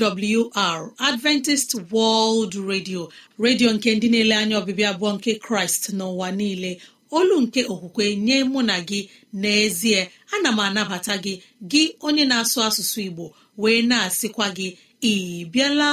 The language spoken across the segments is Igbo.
AWR Adventist World Radio redio nke ndị na-ele anya ọbịbịa abụọ nke Kraịst n'ụwa niile olu nke okwukwe nye mụ na gị n'ezie ana m anabata gị gị onye na-asụ asụsụ Igbo wee na-asịkwa gị ị bịala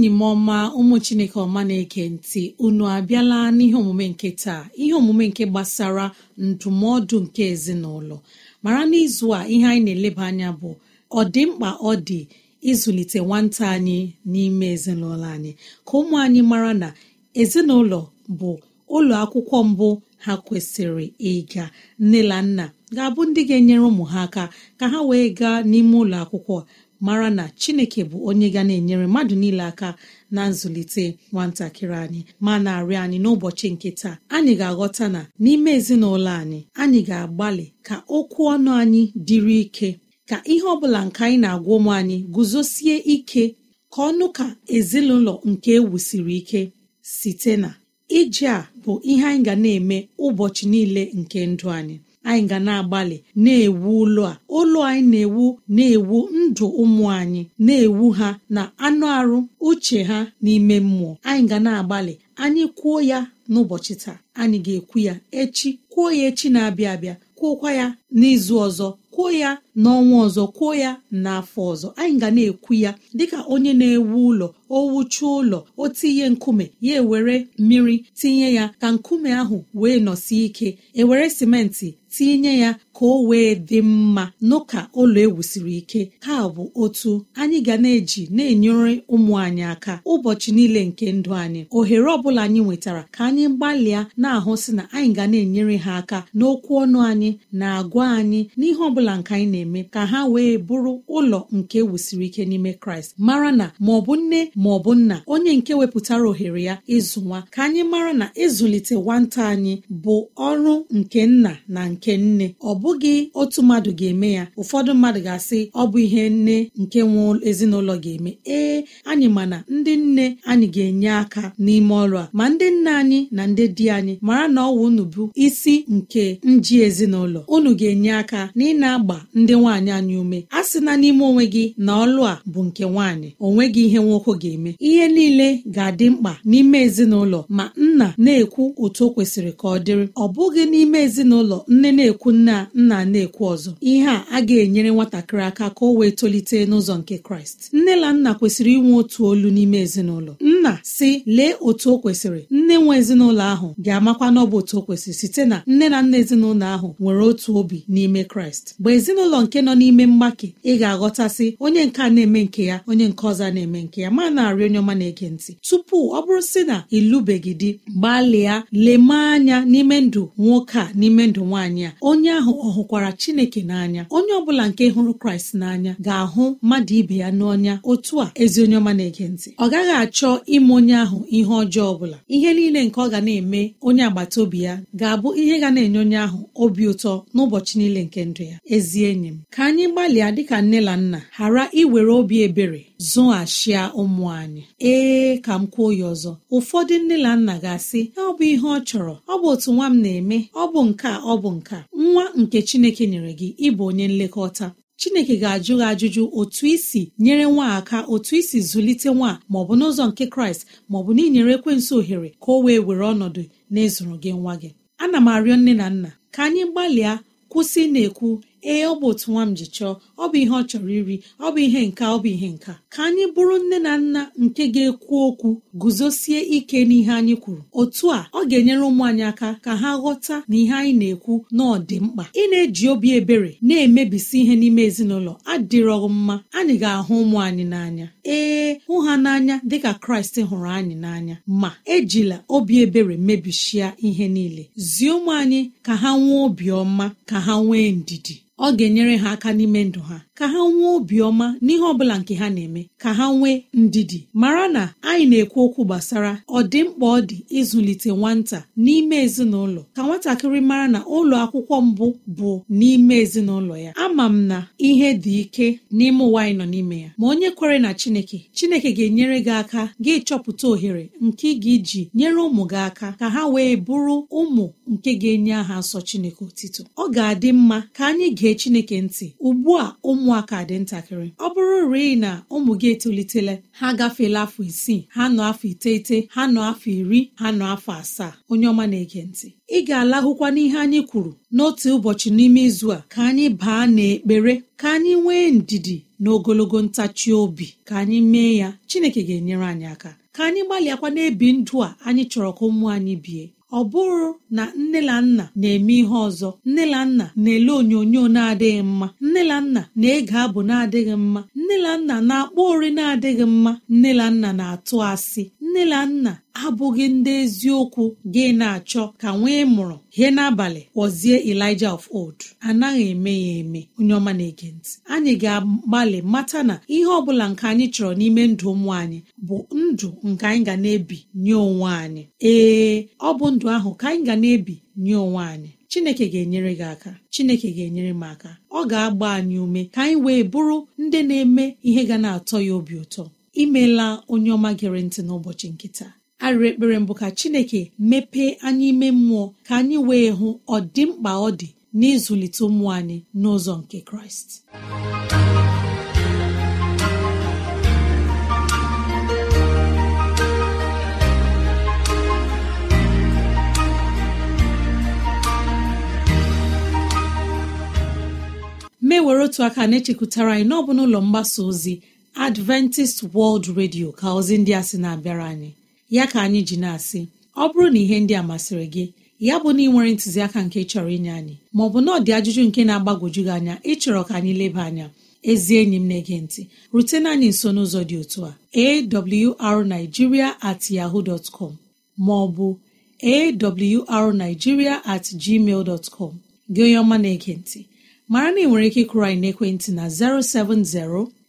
enyi m ọma ụmụ chineke ọma na-eke ntị unu abịala n'ihe omume nke taa ihe omume nke gbasara ndụmọdụ nke ezinụlọ mara n'izu a ihe anyị na-eleba anya bụ ọdịmkpa dị mkpa ọ dị ịzụlite nwata anyị n'ime ezinụlọ anyị ka ụmụ anyị mara na ezinụlọ bụ ụlọ akwụkwọ mbụ ha kwesịrị ịga nne na nna ga-abụ ndị ga-enyere ụmụ ha aka ka ha wee gaa n'ime ụlọ akwụkwọ mara na chineke bụ onye ga na-enyere mmadụ niile aka na nzụlite nwatakịrị anyị ma na-arịọ anyị n'ụbọchị nke taa anyị ga-aghọta na n'ime ezinụlọ anyị anyị ga-agbalị ka okwu ọnụ anyị dịrị ike ka ihe ọ bụla nke anyị na-agwa ụmụ anyị guzosie ike ka ọnụ ka ezinụlọ nke ewusiri ike site na ije a bụ ihe anyị ga na-eme ụbọchị niile nke ndụ anyị anyị ga na-agbalị na-ewu ụlọ a ụlọ anyị na-ewu na-ewu ndụ ụmụ anyị na-ewu ha na anụ arụ uche ha n'ime mmụọ anyị ga na-agbalị anyị kwuo ya n'ụbọchị taa anyị ga-ekwu ya echi kwuo ya echi na-abịa abịa kwuokwa ya n'izu ọzọ kwuo ya n'ọnwa ọzọ kwuo ya n'afọ ọzọ anyị ga na-ekwu ya dịka onye na-ewu ụlọ o wuchuo ụlọ o tinye nkume ya ewere mmiri tinye ya ka nkume ahụ wee nọsie ike ewere simenti tinye ya ka o wee dị mma n'ụka ụlọ ewusiri ike ka bụ otu anyị ga na-eji na-enyere ụmụ anyị aka ụbọchị niile nke ndụ anyị ohere ọbụla anyị nwetara ka anyị gbalịa na-ahụ si na anyị ga na-enyere ha aka n'okwu ọnụ anyị na-agwa anyị n'ihe ọbụla nke anyị na-eme ka ha wee bụrụ ụlọ nke ewusiri ike n'ime kraịst mara na ma ọ bụ nne ma ọ bụ nna onye nke wepụtara ohere ya ịzụ nwa ka anyị mara na ịzụlite nwata anyị bụ ọrụ nke nna na nke nne ọ bụ bụghị otu mmadụ ga-eme ya ụfọdụ mmadụ ga-asị ọ bụ ihe nne nke nwe ezinụlọ ga-eme ee anyị mana ndị nne anyị ga-enye aka n'ime ọrụ a ma ndị nna anyị na ndị di anyị mara na ọwụ unu bụ isi nke nji ezinụlọ unu ga-enye aka na ị na-agba ndị nwaanyị anyị ume a sị na n'ime onwe gị na ọlụ a bụ nke nwaanyị gị ihe nwoke ga-eme ihe niile ga-adị mkpa n'ime ezinụlọ ma nna na-ekwu otu o kwesịrị ka ọ dịrị ọ bụghị n'ime ezinụlọ nne na-ekwu nna nna na-ekwu ọzọ ihe a a ga-enyere nwatakịrị aka ka o wee tolite n'ụzọ nke kraịst nne na nna kwesịrị inwe otu olu n'ime ezinụlọ nna si lee otu o kwesịrị nne nwe ezinụlọ ahụ ga-amakwa n'ọbụ otu o kwesịrị site na nne na nna ezinụlọ ahụ nwere otu obi n'ime kraịst mgbe ezinụlọ nke nọ n'ime mgbake ị ga-aghọtasị onye nke na-eme nke ya onye nke ọzọ na-eme nke ya ma na-arị onye ọma na-ege ntị tupu ọ bụrụ sị na ịlụbeghị gbalịa lemee anya n'ime ndụ nwoke a n'ime ndụ nwaanyị a onye ahụ ọ hụkwara chineke n'anya onye ọ bụla nke hụrụ kraịst n'anya ga-ahụ mmadụ ibe ya n'ọnya otu a ezi onye ọma na-ege ntị ọ gaghị achọ ime onye ahụ ihe ọjọọ ọbụla ihe niile nke ọ ga na-eme onye agbata obi ya ga-abụ ihe ga na-enye onye ahụ obi ụtọ n'ụbọchị niile nke ndụ ya ezi enyi m ka anyị gbalịa dịka nne na nna ghara iwere obi ebere zụghachia ụmụ anyị ee ka m kwuo ya ọzọ ụfọdụ nne na nna ga-asị ọ bụ ihe ọ chọrọ ọ bụ otu nwa m na-eme ọ bụ nke ọ bụ nke nwa nke chineke nyere gị ịbụ onye nlekọta chineke ga-ajụ gị ajụjụ otu isi nyere nwa aka otu isi zụlite nwa bụ n'ụzọ nke kraịst maọbụ na inyere ekwensị ohere ka o wee were ọnọdụ na ezuru gị nwa gị ana m arịọ nne na nna ka anyị gbalịa kwụsị na-ekwu ee ọ bụ otu nwa m ji chọọ ọ bụ ihe ọ chọrọ iri ọ bụ ihe nka ọ bụ ihe nka ka anyị bụrụ nne na nna nke ga-ekwu okwu guzosie ike n'ihe anyị kwuru otu a ọ ga-enyere ụmụ anyị aka ka ha ghọta na ihe anyị na-ekwu na mkpa ị na-eji obi ebere na-emebisi ihe n'ime ezinụlọ adịrọghị mma anyị ga-ahụ ụmụ anyị n'anya ee hụ ha n'anya dịka kraịst hụrụ anyị n'anya ma ejila obi ebere mebishia ihe niile zie ụmụ anyị ka ha nwee obiọma ka ha nwee ndidi ọ ga-enyere ha aka n'ime ndụ ha ka ha nwee obiọma n'ihe ọ bụla nke ha na-eme ka ha nwee ndidi mara na anyị na-ekwu okwu gbasara ọdịmkpa ọ dị ịzụlite nwata n'ime ezinụlọ ka nwatakịrị mara na ụlọ akwụkwọ mbụ bụ n'ime ezinụlọ ya ama m na ihe dị ike n'ime ụwa anyị nọ n'ime ya ma onye kwere na Chineke Chineke ga-enyere gị aka gị chọpụta ohere nke gị ji nyere ụmụ gị aka ka ha wee bụrụ ụmụ nke ga-enye aha nsọ Chineke otito ọ ga-adị mma ka anyị gee gee chineke ntị ugbu a ụmụaka dị ntakịrị ọ bụrụ rịị na ụmụ gị etolitela ha agafeela afọ isii ha nọ afọ iteghete ha nọ afọ iri ha nọ afọ asaa onye ọma na-ege ntị ị ga-alahụkwa n'ihe anyị kwuru n'otu ụbọchị n'ime izu a ka anyị baa n'ekpere ka anyị nwee ndidi na ogologo ntachi obi ka anyị mee ya chineke ga-enyere anyị aka ka anyị gbalịakwa na ndụ a anyị chọrọ ka ụmụ anyị bie ọ bụrụ na nne na nna na-eme ihe ọzọ nne na nna na-ele onyonyo na-adịghị mma nne na nna na-ege abụ na-adịghị mma nne na nna na-akpọ ori na-adịghị mma nne na nna na-atụ asị nne na nna abụghị ndị eziokwu gị na-achọ ka nwee mụrụ hie n'abalị kpọzie Elijah of old anaghị eme ya eme onye ọma na-ege ntị anyị ga-agbalị mata na ihe ọ bụla nke anyị chọrọ n'ime ndụ ụmụ anyị bụ ndụ nke anyị ga na-ebi nye onwe anyị ee ọ bụ ndụ ahụ ka anyị ga na-ebi nye onwe anyị Chineke ga-enyere gị aka Chineke ga-enyere m aka ọ ga-agba anyị ume ka anyị wee bụrụ ndị na-eme ihe ga na-atọ ya obi ụtọ imeela onye ọma gere ntị n'ụbọchị nkịta. arịrị ekpere mbụ ka chineke mepee anyị ime mmụọ ka anyị wee hụ ọdịmkpa ọ dị n'ịzụlite ụmụ anyị n'ụzọ nke kraịst mewere otu aka na-echekwutara anyị n'ọbụ n'ụlọ mgbasa ozi adventist world radio ka ozi ndị a si na-abịara anyị ya ka anyị ji na-asị ọ bụrụ na ihe ndị a masịrị gị ya bụ na ị nwere ntụziaka nke chọrọ inye anyị maọbụ na ọ dị ajụjụ nke na-agbagwoju gị anya ịchọrọ ka anyị leba anya ezi enyi m na-ege ntị rutena anyị nso n'ụzọ dị otu a arigiria at yaho dot com maọbụ arigiria at gmail dot gị onye ọma na-ege ntị mara na ị nwere ike ịkụrụ anyị n'ekwentị na 070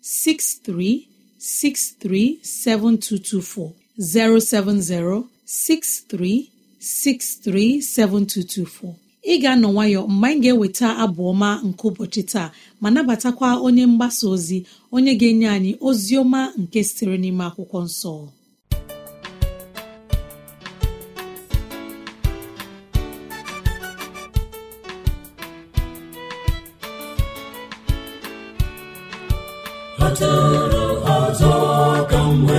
6363 7224 070 7224 ị ga-anọ nwayọ mgbe anyị ga-eweta abụ ọma nke ụbọchị taa ma nabatakwa onye mgbasa ozi onye ga-enye anyị ozi ọma nke sitere n'ime akwụkwọ nsọ ka m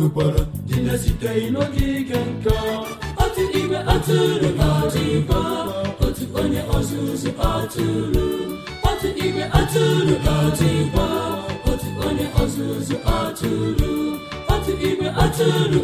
nwekwara na site n'oge ike nka otu igwe atụrụ ga otu onye ọzụzụ atụrụ otu igwe atụrụ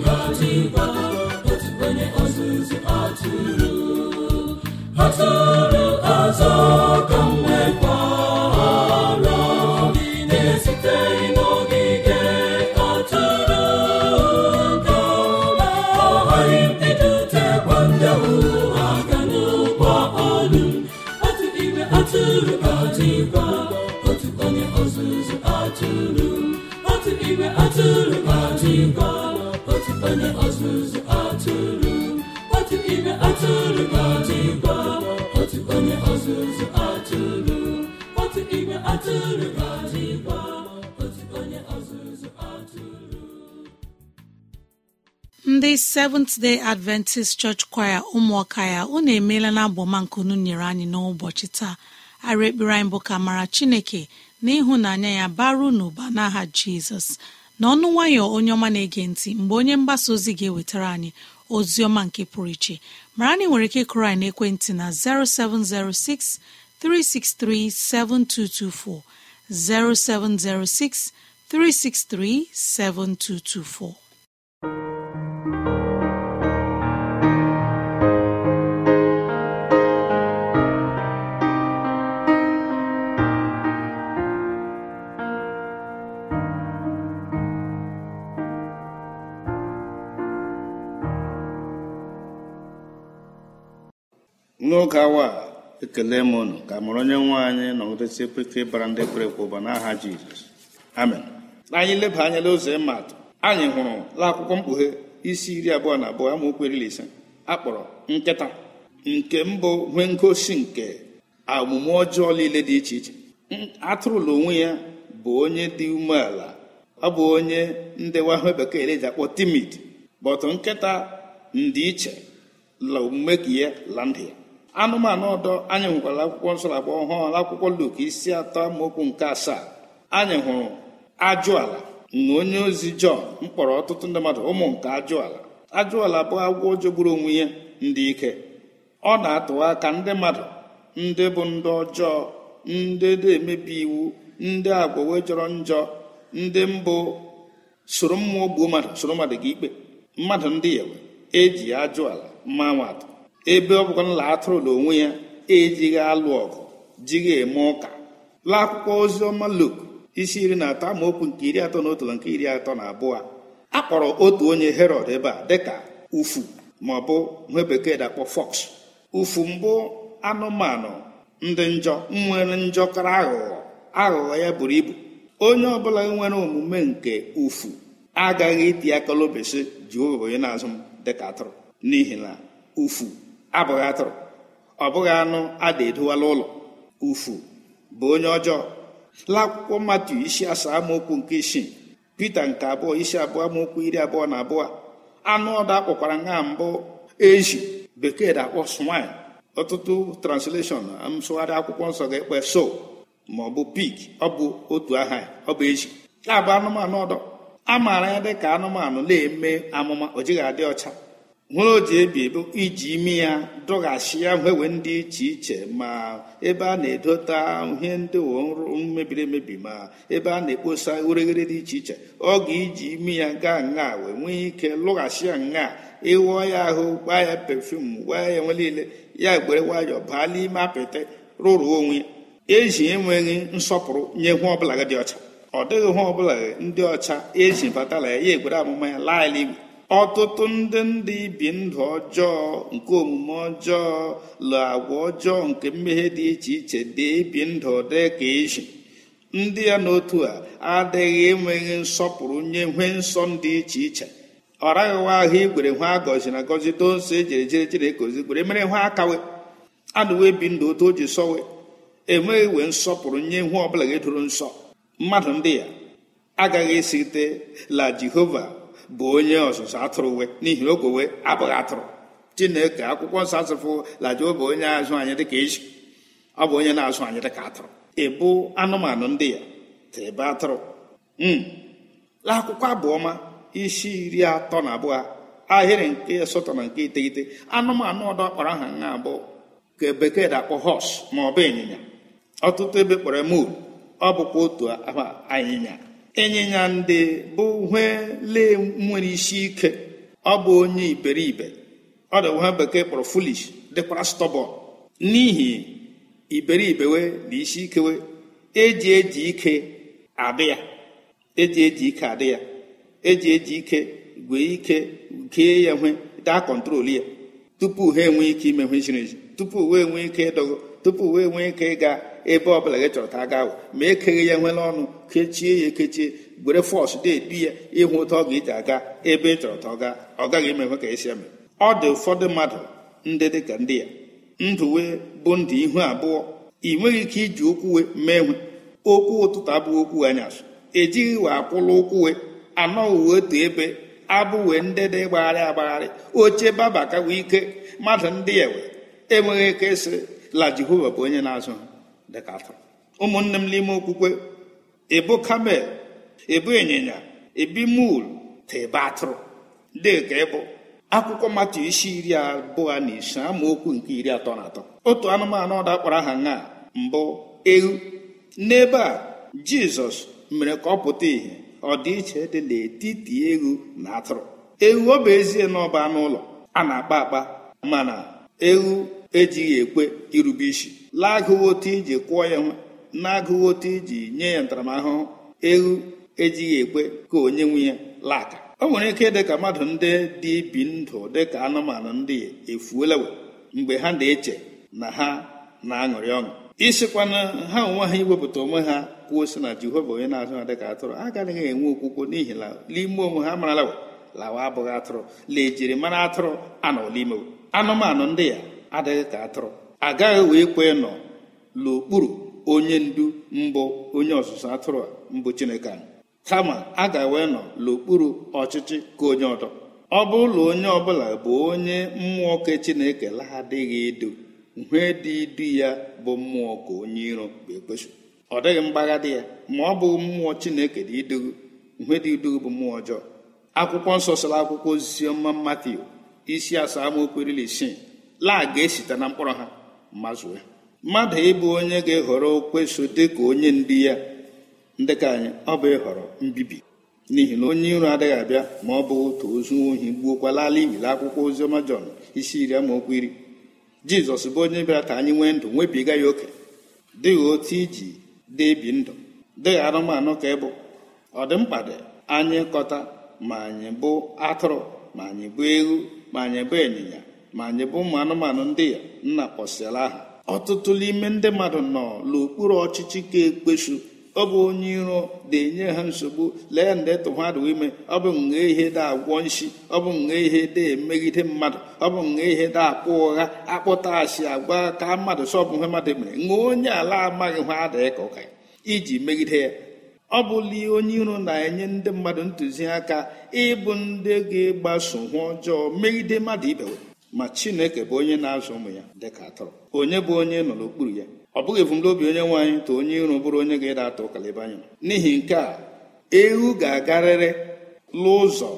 ndị seventh day adventist church choir ụmụọka ya unu emeela na abọmankunu nyere anyị n'ụbọchị taa ara ekpere anyị bụ ka mara chineke na ịhụnanya ya baru n'ụba n'aha jizọs na ọnụ nwayọ onye ọma na-ege ntị mgbe onye mgbasa ozi ga-ewetara anyị ozi ọma nke pụrụ iche mara na ị nwere ike ịkụrụ anyị n'ekwentị na 0706 363 7224 0706 363 7224 n'oge awa a ekele m unu ka mụrụ onye nwe anyị nọgidesi ekweke bara ndị kwere ekwe ụba n'aha jizọs amen anyị leba anya n'ụzọ ịmatụ anyị hụrụ akwụkwọ mkpughe isi iri abụọ na abụọ amaokwu iri ise akpọrọ nkịta nke mbụ nwe ngosi nke omume ọjọọ niile dị iche iche atụrụla onwe ya bụ onye dị umeala ọ bụ onye ndewahụ bekee eji akpọ timid bọtụ nkịta ndịiche iche la omume ka ya la ya anụmanụ ọdọ anyị nwekwara akwụkwọ nsọ abụọ ọhụụ akwụkwọ Luk isi atọ amaokwu nke asaa anyị hụrụ ajụ ala na onye ozi Jọn mkpọrọ ọtụtụ ndị mmadụ ụmụ nke ajụala ajụala bụ agwọ jogburu onwe ya ndị ike ọ na-atụwa aka ndị mmadụ ndị bụ ndị ọjọọ ndị na-emebi iwu ndị agwọwe jọrọ njọ ndị mbụ soro mma gbuo mmadụ soro mmadụ gị ikpe mmadụ ndị yawe eji ajụ ala mma nwatụ ebe ọ bụkwa nla atụrụ na onwe ya ejighị alụ ọgụ jighị eme ụka laa akwụkwọ ozi ọma Luk isi iri na atọ amaokwu nke iri atọ na otu na nke iri atọ na abụọ a kpọrọ otu onye herod ebe a dịka ufu ma ọ bụ nwe bekee dakpọ fox ufu mbụ anụmanụ ndị njọ nwere njọ kara aghụghọ aghụghọ ya buru ibu onye ọbụla nwere omume nke ufu agaghị iti aka lobesi ji onye na-azụ m dịka atụrụ n'ihi na ufu abụghị atụrụ ọ bụghị anụ a da edowala ụlọ ufu bụ onye ọjọọ n'akwụkwọ mmadụ isi asaa amaokwu nke isii pite nke abụọ isi abụọ amaokwu iri abụọ na abụọ anụ ọdụ akpọkwara nha mbụ ezi bekee da-akpọ swine ọtụtụ transleshọn nsụgharị akwụkwọ nsọ ga-ekpe so ma ọ bụ pik ọ bụ otu aha ọ bụ ezi ya bụ anụmanụ ọdọ a maara ya dị ka anụmanụ na-eme amụma o jighị adị ọcha nwere o ji ebi bụ iji imi ya dọghachi ya nwewe ndị iche iche ma ebe a na-edota ihe ndị mebiri emebi ma ebe a na-ekposa ureghere dị iche iche ọ ga-iji imi ya gaa na wee nwee ike lụghachi ya nga ịghọọ ya ahụ gbaa ya pefum gbaa ya nwe niile ya gbere nwayọọ baa n'ime apịtị rụrụ onwe eji enweghị nsọpụrụ nye hụ ọbụla dị ọcha ọ dịghị hụ ọbụla ndị ọcha eji batala ya ya egwere amụma ya laa ala igwe ọtụtụ ndị ndị ibi ndụ ọjọọ nke omume ọjọọ lụ agwa ọjọọ nke mmehie dị iche iche dị ibi ndụ dị ka ezi ndị ya n'otu a adịghị enweghị nsọpụrụ nye nwee nsọ dị iche iche ọ raghịwa ahụ igwere nwa agọzi na agọzi doso ejere jere jere kozi gwere mere nwa akawe anụwe bi ndụ otu o ji sọwe enweghị wee nsọpụrụ nye nwa ọbụla ga-edoro nsọ mmadụ ndị ya agaghị esite la jehova bụ onye ọzụzụ atụrụ we n'ihi oge we abụghị atụrụ chineke akwụkwọ nsọ asụfụ lajuo bụ onye azụ anyị dịka eji ọ bụ onye na-azụ anyị dịka atụrụ ịbụ anụmanụ ndị ya tịrịba atụrụ hmm. akwụkwọ abụọma isi iri atọ na abụọ ahịrị nke asatọ na nke iteghete anụmanụ ọdọ kpọrọ aha nha abụọ ka bekee da akpụ họs ma ọ bụ ịnyịnya ọtụtụ ebe kpọrọ mul ọ bụkwa otu anyịnya ịnyịnya ndị bụ uhele nwere isi ike ọ bụ onye iberibe ọ dị ha bekee kpọrọ fulish dịkwara stọbọn n'ihi iberibewe na isi ikewe eji eji ike adị ya eji eji ike adị ya eji eji ike gwee ike gee ya nwe daa kọntrol ya tupu ha enwee ike ime ihe ziri ezi tupu uwe enwee ike ịdọgo tupu uwe enwee ike ịga ebe ọ bụla gị chọrọ ka a gawo ma ekeghị ya nwere ọnụ kechie ya ekechie gwere fọsụ deebi ya ịhụ ụtọ ọ ga-eji aga ebe ị chọrọ ta ọ gaa ọ gaghị emekwe ka esi eme ọ dị ụfọdụ mmadụ ndị dị ka ndị ya ndụ wee bụ ndụ ihu abụọ ị nweghị ike iji okwu wee mee nwe okwu ụtụtụ abụghị okwu anyasụ ejighị we akwụla ụkwụwe wee uwe otu ebe abụ wee ndị dị gbagharị agbagharị oche baba ka wee ike mmadụ ndị ya wee enweghị ike sị la jehova bụ onye na-azụ dịka atọ ụmụnne m n'ime okwukwe ebu kamel ebu ịnyịnya ebi mul tebe atụrụ ka ịbụ akwụkwọ matu isi iri abụọ na ise amaokwu nke iri atọ na atọ otu anụmanụ ọda kpọrọ aha na mbụ ewu n'ebe a jizọs mere ka ọ pụta ìhè ọdịiche dị n'etiti ewu na atụrụ ewu ọ bụ ezie na ọba anụ ụlọ a na-akpa akpa mana ewu ejighị ekwe irube isi laa agụwo otu iji kwụọ ya nwe na-agụghị otu iji nye ya ntaramahụhụ ewu ejighị ekwe ka onye nwe ya laka o nwere ike dị ka mmadụ ndị dị ibi ndụ dị ka anụmanụ ndị efuola mgbe ha na-eche na ha na-aṅụrị ọṅụ isikwana ha onwe ha iwepụta onwe ha kwuo si na jehova onye na-azụ ha dịka atụrụ agaghị enwe okwukwo n'ihi na n'ime onwe ha marala lawa abụghị atụrụ lejiri mara atụrụ anọla ime anụmanụ ndị ya adịghị ka atụrụ agaghị wee kwe nọ n'okpuru onye ndu mbụ onye ọzụzụ atụrụ a mbụ chineke anyị kama a ga-ewe nọ n'okpuru ọchịchị ka onye ọdọ ọ ụlọ onye ọbụla bụ onye mmụọ ke chineke lahadịghị edo uhie dị idu ya bụ mmụọ ka onye iro bụ kpeso ọ dịghị mgbagha dị ya ma ọ bụ mmụọ chineke dị idugu nhe dị idugu bụ mmụọ ọjọọ akwụkwọ nsọ sara akwụkwọ ọma Matiu isi asaa amaokwu iri isii laa ga-esite na mkpọrọ ha mazụ ya mmadụ ịbụ onye ga-ehọrọ okweso dịka onye ndị ya ndị ka anyị ọ bụ ịhọrọ mbibi n'ihi na onye iro adịghị abịa ma ọ bụ otu ozu ohi gbuokwalala ibili akwụkwọ ozi ọma jọn isi iri okwu iri jizọs bụ onye bịara ka anyị nwee ndụ nwebiga ya oke dịghị otu iji debi ndụ dịghị anụmanụ ka ịbụ ọ dị mkpa dị anyị kọta ma anyị bụ atụrụ ma anyị bụ ewu ma anyị bụ ịnyịnya ma anyị bụ ụmụ anụmanụ ndị ya nna kpọsịala aha ọtụtụ n'ime ndị mmadụ nọ n'okpuru ọchịchị ka ekpechu ọ bụ onye iro na-enye ha nsogbu lee ndị e tụhadụ ime ọ bụ nwa ihe da agwọ ọ bụ nwa ihe da emegide mmadụ ọ bụ nwa ihe da akpụ ụgha akpụta asị agwa ka mmadụ sọbụ ihe mmadụ mere nwa onye ala amaghị ha adịghị ka ụka iji megide ya ọ bụla onye iro na-enye ndị mmadụ ntụziaka ịbụ ndị ga egbaso hụ ọjọọ megide mmadụ ibewe ma chineke bụ onye na-azụ ụmụ ya dịka atụrụ onye bụ onye nọ n'okpuru ya ọ bụghị ebumnobi onye nwaanyị tụ onye iro bụrụ onye ga-ede atụ ụkalịba anya n'ihi nke a ewu ga-agarịrị n'ụzọ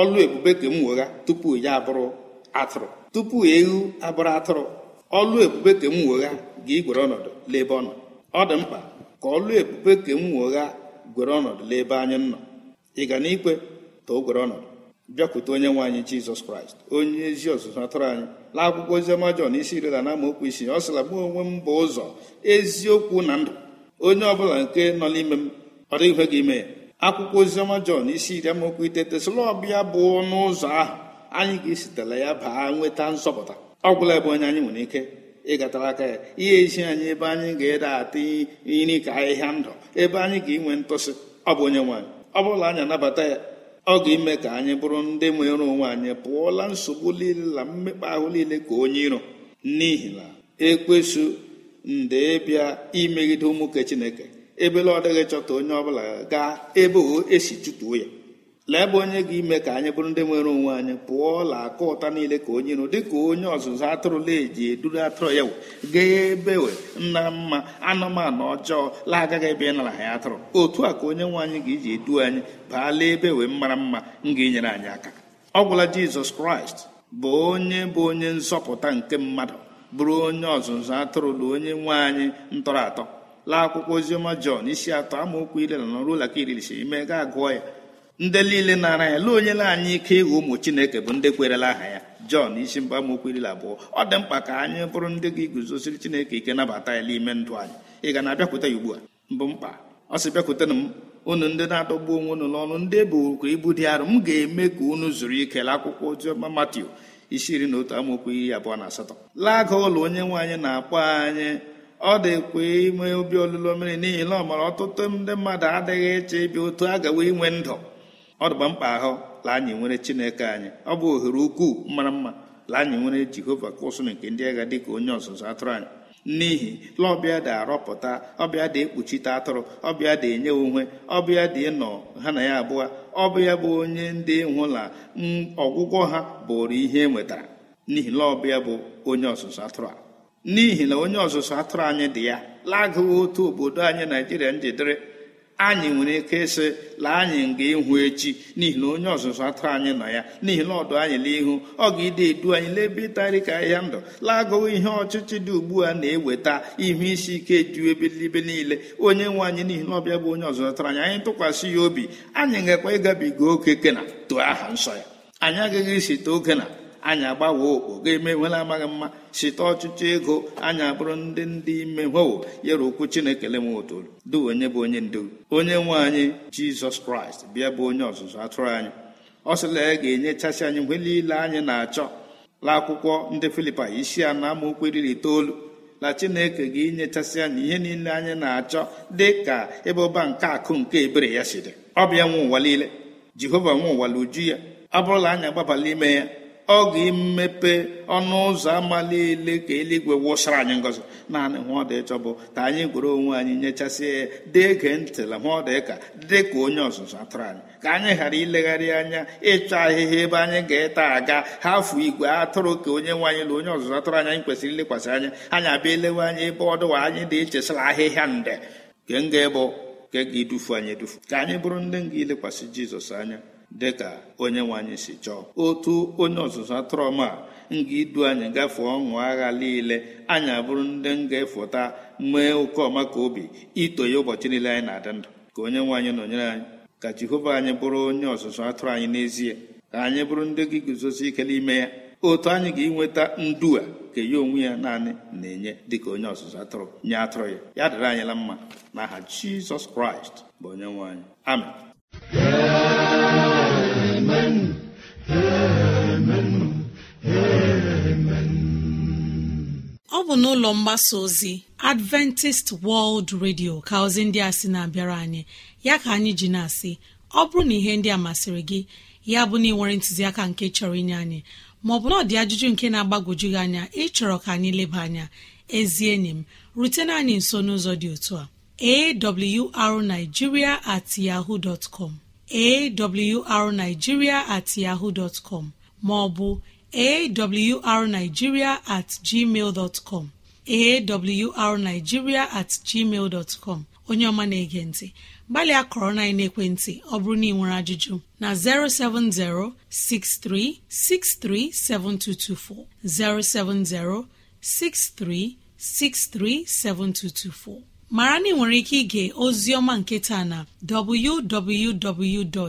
ọlụ ebube ka m wegha tupu ya abụrụ atụrụ tupu ewu abụrụ atụrụ ọlụ ebube ka m wegha ga-igwere ọnọdụ n'ebe ọ nọ ọ dị mkpa ka ọlụ ebube ka m wegha gwere ọnọdụ n'ebe anyị nọ ị ga na ikwe ta o gwere ọnọdụ bịakwute onye nwe anyị jizọs kraịst onye ezi ọzụzụ atụrụ anyị na akwụkwọ oziọma jọn isi iri na amaokwu isi ọ sịla mụ onwe m bụ ụzọ eziokwu na ndụ onye ọbụla nke nọ n'ime m ọ dịghị ihe gị ime ya akwụkwọ ozioma jọn isi iri amaokwu iteghete sịla ọbịa bụ ọnụ ụzọ ahụ anyị ga-esitela ya baa nweta nzọpụta ọ gwụla ebe onye anyị nwere ike ịgatara aka ya ihe ezi anyị ebe anyị ga-ede ata nri ka ahịhịa ndụ ebe anyị ga-enwe ntụsị ọ bụ onye nwaanyị ọ bụla anyị anabata ya ọ ga-ime ka anyị bụrụ ndị nwere onwe anyị pụọla nsogbu niile na mmekpa ahụ niile ka onye iro n'ihi na ekwesu nde bịa imegide ụmụke chineke ebele ọ dịghị chọta onye ọbụla ga ebe o esi chụtuo ya lee ebe onye ga-ime ka anyị bụrụ ndị nwere onwe anyị pụọ la aka ụta niile ka onye nụ dịka onye ọzụzụ atụrụla eji eduru atụrụ ya gaa ga ebewe nna mma anụmanụ ọjọọ la ebe ị nara ya atụrụ otu a ka onye nwe anyị ga-eji edu anyị baala ebe we mara mma m ga-enyere anyị aka ọ gwụla jizọs kraịst bụ onye bụ onye nzọpụta nke mmadụ bụrụ onye ọzụzụ atụrụ na onye nwe anyị ntọrọ atọ laa akwụkwọ oziọma jọn isi atọ amaokwu ile na ọrụ ụlaka iri ime gaa gụọ ya ndị niile nara ya lee onye na-anya ike ịghọ ụmụ chineke bụ ndị kwerela aha ya jọn isi mgba amaokwu abụọ ọ dị mkpa ka anyị bụrụ ndị ga iguzosiri chineke ike nabata ya n'ime ndụ anyị ị ga na-abịakwute ya ugbu a mbụ mkpa ọ sị bịakwutenụ m unu ndị na-adọgbu onwe unu n'ọnụ ndị ebukwa ibu dị arụ m ga-eme ka unu zuru ike la akwụkwọ oziọma matiu isi iri na otu amaokwu iri abụọ na asatọ laaga ụlọ onye nwe anyị na-akpọ anyị ọ dịkwa ime obi olulo mmiri n'ihi na ọ mara ọtụtụ ndị mmadụ adịghị eche ịbịa otu gawa inwe ndụ ọ dịgba mkpa ahụ la anyị nwere chineke anyị ọ bụ ohere ukwuu mara mma la anyị nwere jehova ka nke ndị agha dịka onye ọzụzụ atụrụ anyị n'ihi laọbịa dị arọpụta ọbịa dị ekpuchite atụrụ ọbịa dị enye onwe ọbịa dị ịnọ ha na ya abụọ ọbịa bụ onye ndị na ọgwụgwọ ha bụrụ ihe e nwetara n'ihi laọbịa bụ onye ọzụzụ atụrụ a n'ihi na onye ọzụzụ atụrụ anyị dị ya lagụghị otu obodo anyị naijiria njidere anyị nwere ike ịsị la anyị nga ịhụ echi n'ihi na onye ọzụzụ atụrụ anyị nọ ya n'ihi na ọdụ anyị n'ihu ọ ga-ide edu anyị n'ebe ịtarị ka ahịa ndụ lagụwa ihe ọchịchị dị ugbu a na-eweta ihe isi ike ju ebelibe niile onye nwe anyị n'ihi na ọbịa bụ onye ọzụzụ atụrụ anyị anyị tụkwasị ya obi anyị ngakwa ịgabiga oke kena too aha nsọ ya anyị agaghị isi too kena. anyị agbawa okpo ga-emenwela amaghị mma site ọchịchọ ego anyị abụrụ ndị ndị ime nwewo yere okwu chineke le m otolu du onye bụ onye ndu onye nwe anyị jizọs kraịst bịa bụ onye ọzụzụ atụrụ anyị ọ sịla ya ga-enyechasị anyị mgbe niile anyị na-achọ la akwụkwọ ndị filipa isi a na amaokwu iri itoolu na chineke ga-enyechasị anyị ihe niile anyị na-achọ dị ka ebe nke akụ nke ebere ya si dị ọ bịa nwe ụwa niile jehova nwe ụwa la uju ya ọ bụrụla anyị agbabala ime ya ọ imepe ọnụ ụzọ ama niile ka eluigwe wụsara anyị ngọzi naanị hụ dị ịchọ bụ ka anyị gwere onwe anyị nyechasịa ya dege ntịla hụ ọdị ka dị ka onye ọzụzụ atụrụ anyị ka anyị ghara ilegharị anya ịchọ ahịhịa ebe anyị ga-eta aga hafụ igwe atụrụ ka onye nwe anyị na onye ọzụzụ atụrụ anya anyị kwesịrị ilekwasị anya anyị abịa elewe anyị ebe ọdụwa anyị na-echesara ahịhịa nde nke nga ịbụ nke ga-edufu anyị edufu ka anyị bụrụ ndị nga ilekwasị jizọs anya dị ka onye nwanyị si chọọ otu onye ọzụzụ atụrụ a nga idu anyị gafee ọṅụ agha niile anyị abụrụ ndị nga-efụta mee oke ọma ka obi ya ụbọchị niile anyị na-adị ndụ ka onye nwe anyị nọnyere anyị ka jehova anyị bụrụ onye ọzụzụ atụrụ anyị n'ezie ka anyị bụrụ ndị gị guzosi ike n'ime ya otu anyị ga-enweta ndu a ka ya onwe ya naanị na-enye dịka onye ọzụzụ atụrụ nye atụrụ ya ya dịrị anyị la mma ha jizọs kraịst bụ onye nwaanyị anyị n'ụlọ mgbasa ozi adventist world radio ka ozi ndị a sị na-abịara anyị ya ka anyị ji na-asị ọ bụrụ na ihe ndị a masịrị gị ya bụ na ị ntụziaka nke chọrọ inye anyị maọbụ na ọ dị ajụjụ nke na-agbagwoju gị anya ịchọrọ ka anyị leba anya ezi enyi m rutena anyị nso n'ụzọ dị otu a arigiria at yahoo dot com at yaho maọbụ awrnigeria at gmail dot com awrnigeria at gmail dot com onye ọma na-ege ntị gbalịa kọrọ na ekwentị ọ bụrụ na ị nwere ajụjụ na 070 6363 7224 070 6363 7224 mara na ị ike ige ozi ọma nke taa na www.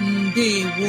ndewo